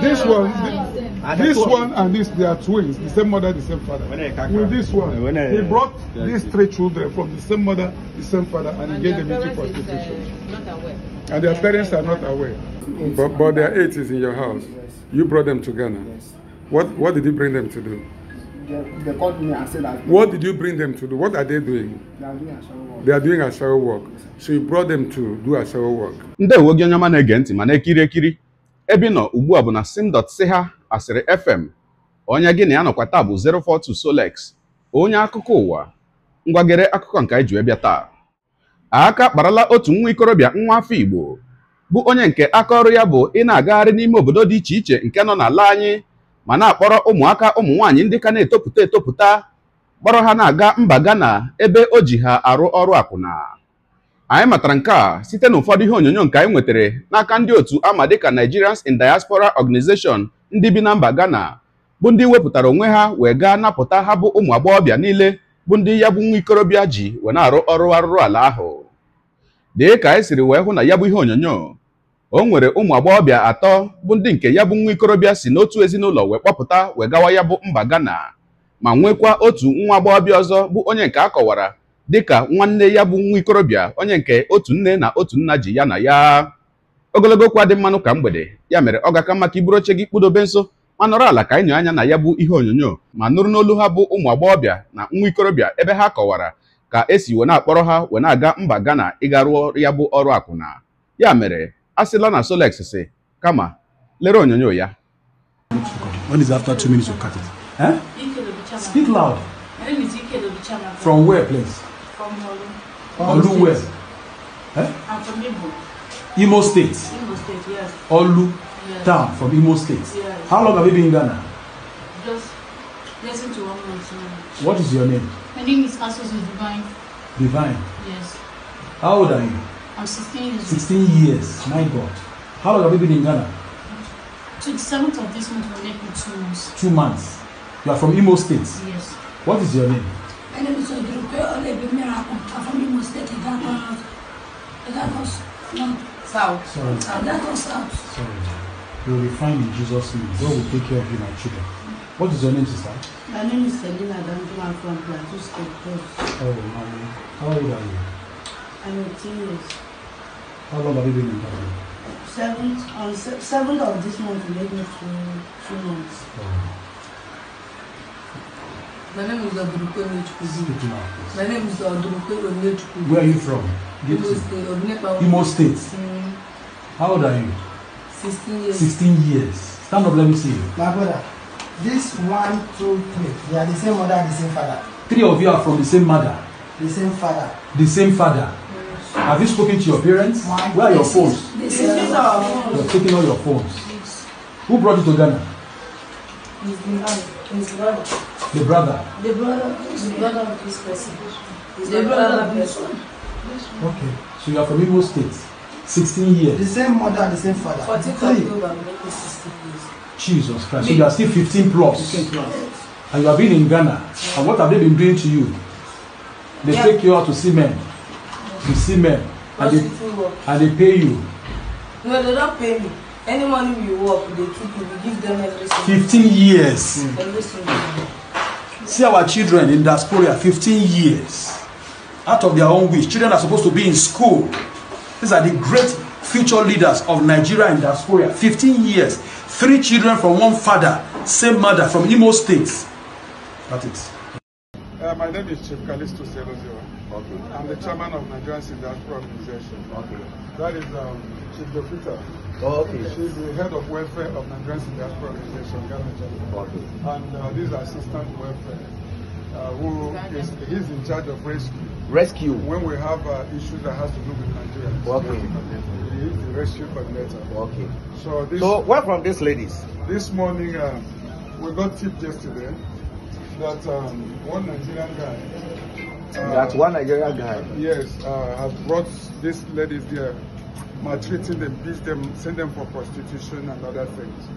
This one, this one and this, they are twins, the same mother, the same father. With this one, he brought these three children from the same mother, the same father, and he gave them into uh, prostitution. And their parents are not aware. But, but their eight is in your house. You brought them to Ghana. What, what did you bring them to do? They, called me and said that. What did you bring them to do? What are they doing? They are doing asharo work. They are doing asharo work. So you brought them to do asharo work. ebe ị nọ ugbu a bụ na ha asịrị fm onye gị na ya nọkwa taa bụ 042 Solex onye akụkọ ụwa ngwagere akụkọ nke anyị ji bịa taa aka kparala otu nwa ikorobịa nwa afọ igbo bụ onye nke aka ọrụ ya bụ ị na-agagharị n'ime obodo dị iche iche nke nọ na-ala anyị ma na-akpọrọ ụmụaka ụmụ nwaanyị ndị ka na-etopụta etopụta kpọrọ ha na-aga mba Ghana ebe o ji ha arụ ọrụ akwụna anyị matara nke a site n'ụfọdụ ihe onyonyo nke anyị nwetara n'aka ndị otu ama dịka Nigerians in Diaspora Organization ndị bi na mba Ghana bụ ndị wepụtara onwe ha wee gaa napụta ha bụ ụmụ agbọghọbịa niile bụ ndị ya bụ nwa ikorobịa ji wee na-arụ ọrụ arụrụ ala ahụ dị ka anyị siri wee hụ na ya bụ ihe onyonyo o nwere ụmụ agbọghọbịa atọ bụ ndị nke ya bụ nwa ikorobịa si n'otu ezinụlọ wee kpọpụta wee gawa ya bụ mba Ghana ma nwekwa otu nwa agbọghọbịa ọzọ bụ onye nke a kọwara dịka nwanne ya bụ nwa ikorobịa onye nke otu nne na otu nna ji ya na ya ogologo okwu adị mmanụ ka mgbede ya mere ọ ga maka iburu oche gị kpụdobe nso ma nọrọ ala ka enyo anya na ya bụ ihe onyonyo ma nụrụ n'olu ha bụ ụmụ agbọghọbịa na nwa ikorobịa ebe ha kọwara ka esi wee na-akpọrọ ha wee na-aga mba Ghana ịga rụọ ya bụ ọrụ akwụna ya mere a sịla na Solex si kama lere onyonyo ya from Olu. Oluwe. Eh? I'm from Imo. Imo State. Imo State, yes. Olu yes. town from Imo State. Yes. How long have you been in Ghana? Just less than one month What is your name? My name is Asos Divine. Divine? Yes. How old are you? I'm 16 years. 16 years, my God. How long have you been in Ghana? 27th of this month will make two months. Two months. You are from Imo State? Yes. What is your name? ẹlẹ́bi sọ ìdúró pé ó lè bí mìíràn kan àfọ́nmí mistake ìdá kan ìdá kan south ìdá kan south. We will be fine in Jesus' name. God will take care of you, my children. What is your name, sister? My name is Selina Dandu. I'm from Plateau State. Oh, mommy. How old are you? I'm 18 years. How long have you been in Plateau? Seventh, on se seventh of this month, we made me two, two months. Oh. My name is Odurupe Onyechukwudu. My name is Odurupe Onyechukwudu. Where are you from? Imo State. Imo State. Mm-hmm. How old are you? 16 years. 16 years. Stand up, let me see you. My brother, this one, two, three, they are the same mother and the same father. Three of you are from the same mother. The same father. The same father. Yes. Have you spoken to your parents? My Where are your phones? This is our phones. You're taking all your phones. Yes. Who brought you to Ghana? His brother. His brother. The brother. The brother. The brother of this person. the brother of this one. Okay. So you are from Igbo State. 16 years. The same mother, and the same father. 14 October, making 16 years. Jesus Christ. So you are still 15 plus. 15 plus. And you have been in Ghana. And what have they been doing to you? They yeah. take you out to see men. To see men. And they, and they pay you. No, they don't pay me. Any money you work, they keep you. We give them everything. 15 years. Mm. Everything see our children in diaspora 15 years out of their own wish children are supposed to be in school these are the great future leaders of nigeria in diaspora 15 years three children from one father same mother from imo state that is uh, my name is Chief Kalisto Zero Zero. Okay. I'm the chairman of Nigerian in Organization. Okay. That is um, Chief Dofita. Oh, okay. She's the head of welfare of Nigerian Diaspora Organization, Okay. And uh, this assistant welfare, uh, who is he's in charge of rescue. Rescue. When we have uh, issues that has to do with Nigeria. Okay. We need the rescue coordinator. Okay. So this. So where from these ladies? This morning, uh, we got tip yesterday that um, one Nigerian guy. Uh, that one Nigerian guy. Yes, uh, has brought these ladies there maltreating them, beat them, send them for prostitution and other things.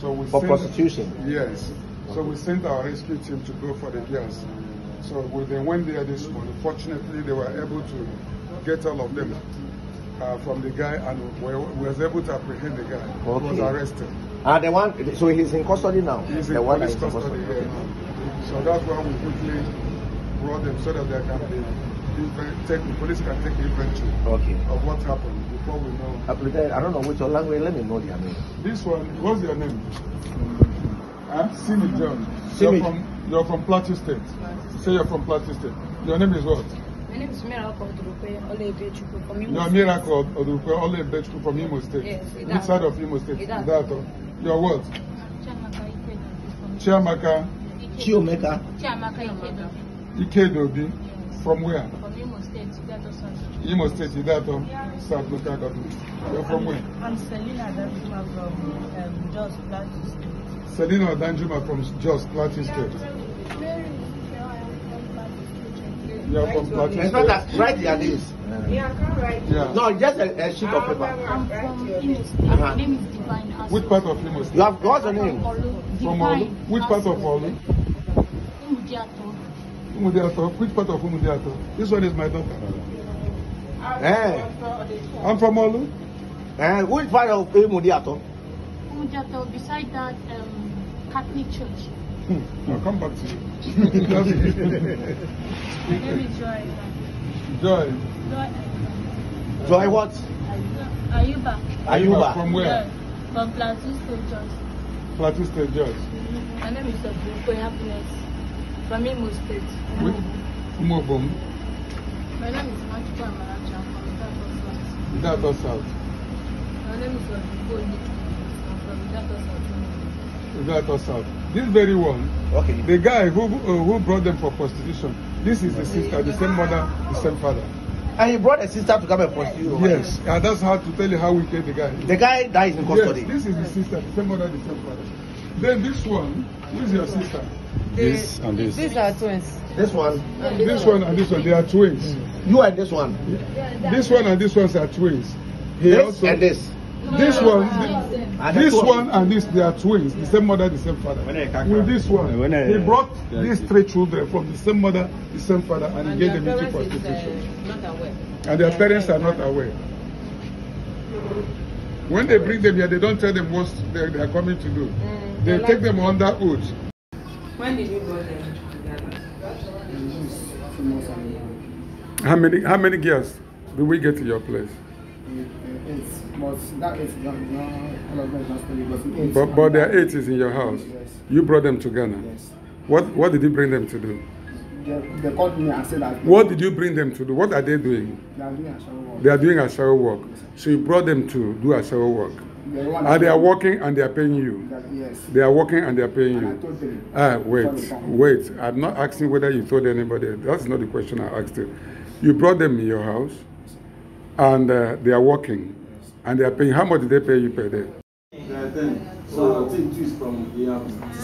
So we for sent, prostitution? Yes. So we sent our rescue team to go for the girls. So we, they went there this morning. Fortunately, they were able to get all of them uh, from the guy and we, we was able to apprehend the guy. who okay. was arrested. Ah, the one, so he's in custody now? He's the one is custody, custody. Yeah. Okay. So that's why we quickly brought them so that they can be, take, the police can take inventory okay. of what happened before I, pretend, I don't know which language. Let me know their name. This one, what's your name? Huh? Simi John. Simi. You're from, you're from Plateau State. Plateau. Say you're from Plateau State. Your name is what? My name is Miracle Odurupe Olebechukwu from Imo State. You're Miracle Odurupe Olebechukwu from Imo State. Yes, Which side of Imo State? Idaho. You're what? Chiamaka. Chiomeka. Chiamaka Ikedobi. Ikedobi. From where? From Imo State, Idaho. Imo State, Idaho. Yeah. South local government. You're from I'm, where? I'm Selina Danjuma from um, Jos Plateau State. Selina Danjuma from Jos Plateau State. You're from Plateau State. Right, write their names. Yeah, I can't write. Yeah. No, just a, a sheet of ah, paper. I'm from Imo uh-huh. My name is Divine. As Which part of Imo State? You have got your name? From Olu. Which part of Olu? Umudiato. Umudiato. Which part of Umudiato? This one is my daughter. Eh. I'm from Olu. Eh. Which part of Umudiato? Umudiato, beside that um, Catholic church. Hmm. I'll come back to you. My name is Joy. Joy. Joy. Joy what? Ayuba. Ayuba. From where? Joy. From Plateau State George. Plateau State George. Mm-hmm. My name is Obuko Happiness. From Imo State. Wait. Umo Bom. My name is Machuka Amara. Without South. My name is Without us out. This very one, okay. the guy who uh, who brought them for prostitution, this is the sister, the same mother, the same father. And he brought a sister to come and prostitute. Yes, and that's how to tell you how get the guy The guy dies in custody? Yes, this is the sister, the same mother, the same father. Then this one, who is your sister? this and this. These are twins. This one. And this, one. and this one. They are twins. Mm. You and this one. Yeah. This one and this ones are twins. He this also, and this. This one, ah, this, this one and this, they are twins, the same mother, the same father. With this one, he brought these three children from the same mother, the same father, and, and he gave them into uh, prostitution. and their parents are not aware. When they bring them here, they don't tell them what they, are coming to do. Mm. they take them under oath. When did you go there? How many how many girls did we get to your place? but but, there are eight is in your house. Yes. You brought them to Ghana. Yes. What what did you bring them to do? They, they called me and said that. What did you bring them to do? What are they doing? They are doing a shower work. They are doing a shower work. Yes. So you brought them to do a shower work. And they are working and they are paying you. That, yes. They are working and they are paying and you. Ah, wait, wait. I'm not asking whether you told anybody. That's not the question I asked you. You brought them in your house and uh, they are working yes. and they are paying. How much did they pay you per day? So,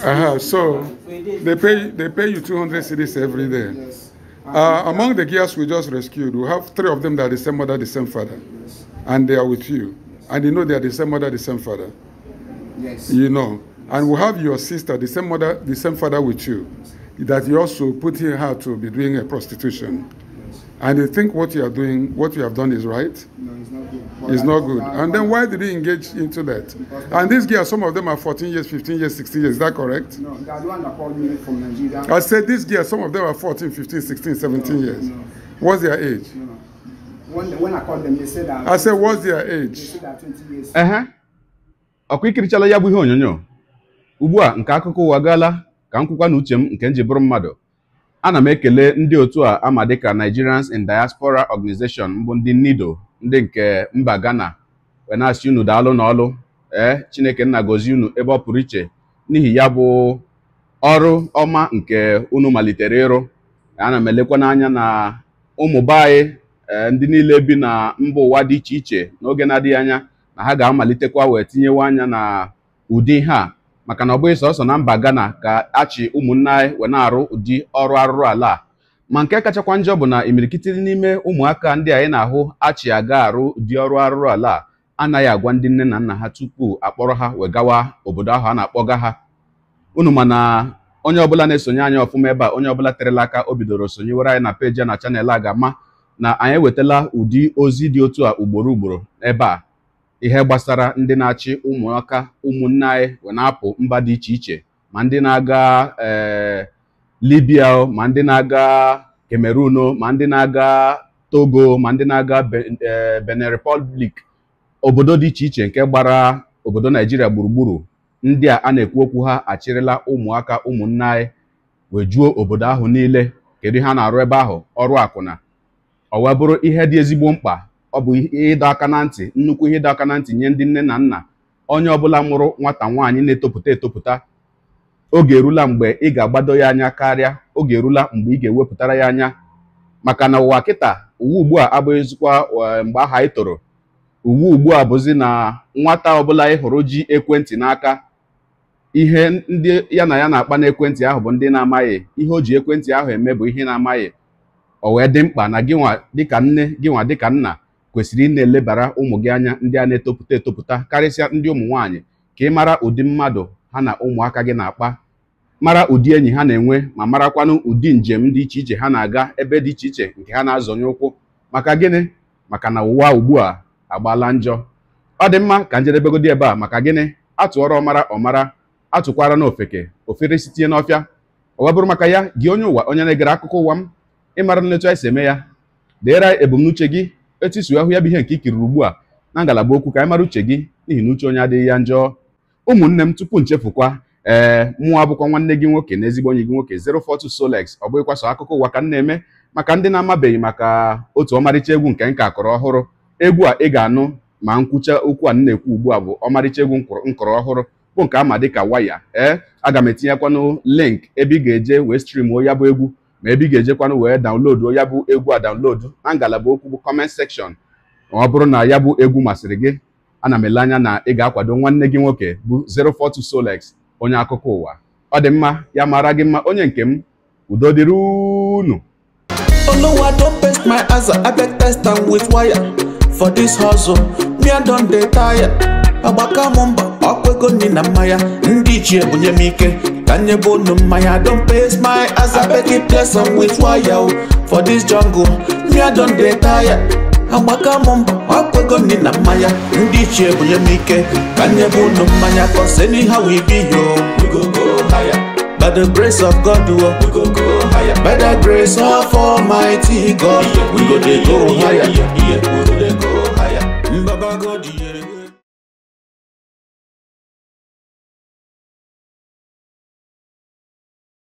uh-huh. so they pay they pay you 200 cities every day. Yes. Uh, among the girls we just rescued, we have three of them that are the same mother, the same father, and they are with you. And you know they are the same mother, the same father. Yes. You know. Yes. And we have your sister, the same mother, the same father with you. That you also put in her to be doing a prostitution. Yes. And you think what you are doing, what you have done is right. No, it's not good. But it's not good. And then why did he engage into that? And these girls, some of them are 14 years, 15 years, 16 years. Is that correct? No, that's one that called me from Nigeria. I said these girls, some of them are 14, 15, 16, 17 no, years. No. What's their age? No. When, when I called them, they said that. I said, what's their age? They said that 20 years. Uh-huh. ikirichala ya bụ ihe onyonyo ugbu a nke akụkọ ụwa gaala ka m kwukwa na uche m nke nji bụrụ mmadụ ana m ekele ndị otu a ama dịka Nigerians in Diaspora Organization mbụ ndị NIDO ndị nke mba Ghana wee na unu daalụ n'ọlụ ee Chineke nna gozie unu ebe ọ pụrụ iche n'ihi ya bụ ọrụ ọma nke unu malitere ịrụ ana m elekwa n'anya na ụmụ be Eh, ndị niile bi na mba ụwa dị iche iche n'oge na-adịghị anya na ha ga-amalitekwa wee tinyewe anya na ụdị ihe a maka na ọ bụghị sọsọ na mba Ghana ka achị ụmụnna anyị wee na-arụ ụdị ọrụ arụrụ ala a ma nke kachakwa njọ bụ na imirikiti n'ime ụmụaka ndị anyị na-ahụ achị aga arụ ụdị ọrụ arụrụ ala a anaghị agwa ndị nne na nna ha tupu akpọrọ ha wee gawa obodo ahụ a na-akpọga ha unu ma na onye ọbụla na-esonye anyị ọfụma ebe a onye ọbụla terela aka o bidoro sonyewere anyị na peji na chanel a ga-ama na anyị ewetala ụdị ozi dị otu a ugboro ugboro ebe a ihe gbasara ndị na-achị ụmụaka ụmụnne anyị na-apụ mba dị iche iche ma ndị na-aga eh, Libya ma ndị na-aga Cameroon ma ndị na-aga Togo ma ndị na-aga eh, Benin Republic obodo dị iche iche nke gbara obodo Naijiria gburugburu ndị a na-ekwu okwu ha achịrịla ụmụaka ụmụnne anyị wee juo obodo ahụ niile kedu ihe a na-arụ ebe ahụ ọrụ akwụna ọ wee bụrụ ihe dị ezigbo mkpa ọ bụ ihe ịdọ aka na ntị nnukwu ihe ịdọ aka na ntị nye ndị nne na nna onye ọbụla mụrụ nwata nwaanyị na-etopụta etopụta oge erula mgbe ị ga-agbado ya anya karịa oge erula mgbe ị ga-ewepụtara ya anya maka na ụwa kịta uwe ugbu a abụghịzikwa eh, mgbe aha ị toro uwe ugbu a bụzi na nwata ọbụla ị hụrụ ji ekwentị n'aka ihe ndị ya na ya na-akpa n'ekwentị ahụ bụ ndị na-amaghị ihe o ji ekwentị ahụ eme bụ ihe na-amaghị o wee dị mkpa na gịnwa dịka nne gịnwa dịka nna kwesịrị ị na-elebara ụmụ gị anya ndị a na-etopụta etopụta karịsịa ndị ụmụ nwaanyị ka ị mara ụdị mmadụ ha na ụmụaka gị na-akpa mara ụdị enyi ha na-enwe ma marakwanụ ụdị njem dị iche iche ha na-aga ebe dị iche iche nke ha na-azọnye ụkwụ maka gịnị maka na ụwa ugbu a agbaala njọ ọ dị mma ka njedebegodi ebe a maka gịnị atụọrọ ọmara ọmara atụkwara na ofere sitie n'ọfịa ọ bụrụ maka ya gị onye ụwa onye na-egere akụkọ ụwa m ịmara nletu anyị si eme ya deere ebumnuche gị etu isi ahụ ya bụ ihe nke ikiriri ugbu a na ngalaba okwu ka anyị mara uche gị n'ihi na uche onye adịghị ya njọ ụmụnne m tupu nchefukwa ee mụọ abụkwa nwanne gị nwoke na ezigbo onye gị nwoke 042 Solex ọ bụghịkwa sọ akụkọ ụwa ka m na-eme maka ndị na-amabeghị maka otu ọmarịcha egwu nke nka akọrọ ọhụrụ egwu a ị ga-anụ ma nkwucha okwu a nna na-ekwu ugbu a bụ ọmarịcha egwu nkọrọ ọhụrụ bụ nke dị ka waya ee aga m etinyekwanụ link ebe ị ga-eje wee streamuo ya bụ egwu ma ebe ị ga-ejekwanụ wee daunlodu ya bụ egwu a daunlodu na ngalaba okwu bụ kọment sekshọn ọ bụrụ na ya bụ egwu masịrị gị ana m ele anya na ị ga-akwado nwanne gị nwoke bụ 042 Solex onye akụkọ ụwa ọ dị mma ya mara gị mma onye nke m udo dịrị unu for this hustle me I don dey tire mba ọkụego nri na mmanya ndị ichie bunye m ike ka nyebe unu mmanya don pay my as I beg you bless with wire for this jungle me I don dey tire agbaka m mba ọkụego nri na mmanya ndị ichie bunye m ike ka nyebe unu mmanya cause anyhow we be yo we go go higher by the grace of God we go go higher by the grace of almighty God we go go higher